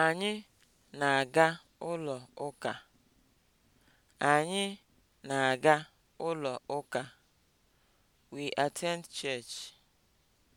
Anyị na-aga ụlọ ụka. Anyị na-aga ụlọ ụka. We attend church.